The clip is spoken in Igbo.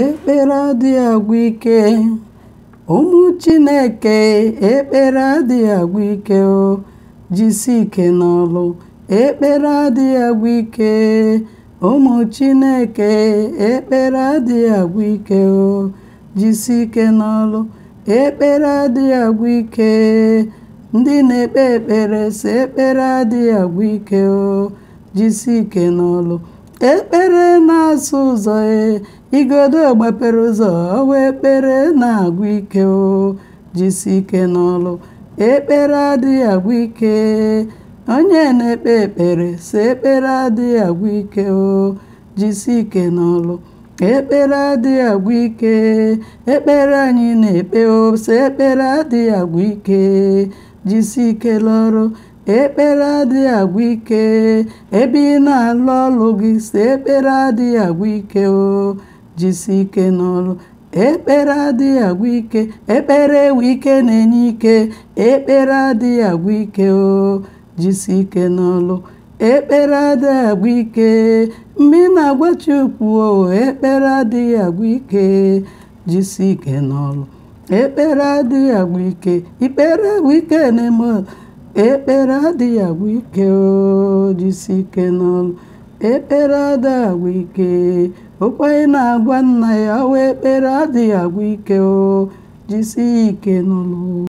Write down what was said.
ekpere adịghị agwụ ike ụmụ chineke ekpere adịghị agwụ ike o ike n'ọlụ ekpere adịghị agwụ ike ụmụ chineke ekpere adịghị agwụ ike o ike n'ọlụ ekpere adịghị agwụ ike ndị na-ekpe ekpere si ekpere adịghị agwụ ike o jisi ike n'ọlụ ekpere na-asụ ụzọ e igodo gbapere ụzọ ọwa ekpere na-agwụ ike o jisi ike n'ọlụ ekpere adịghị agwụ ike onye na-ekpe ekpere sị ekpere adịghị agwụ ike o jisi ike n'ọlụ ekpere adịghị agwụ ike ekpere anyị na-ekpe o sị ekpere adịghị agwụ ike jisi ike lọrụ ekpere adịghị agwụ ike ebe ị na-alụ ọlụ gị si ekpere adịghị agwụ ike o jisi ike n'ọrụ ekpere adịghị agwụ ike ekpere ewu ike na-enye ike ekpere adịghị agwụ ike o jisi ike n'ọrụ ekpere adịghị agwụ ike mgbe ị na-agwa Chukwu o ekpere adịghị agwụ ike jisi ike n'ọrụ ekpere adịghị agwụ ike ikpere agwụ ike na-eme ekpere adịghị agwụ ike ojisi ike n'ụlọ. ekpere adịghị agwụ ike okwenye na-agwa nna ya wa ekpere adịghị agwụ ike ọ jisi ike n'ụlọ.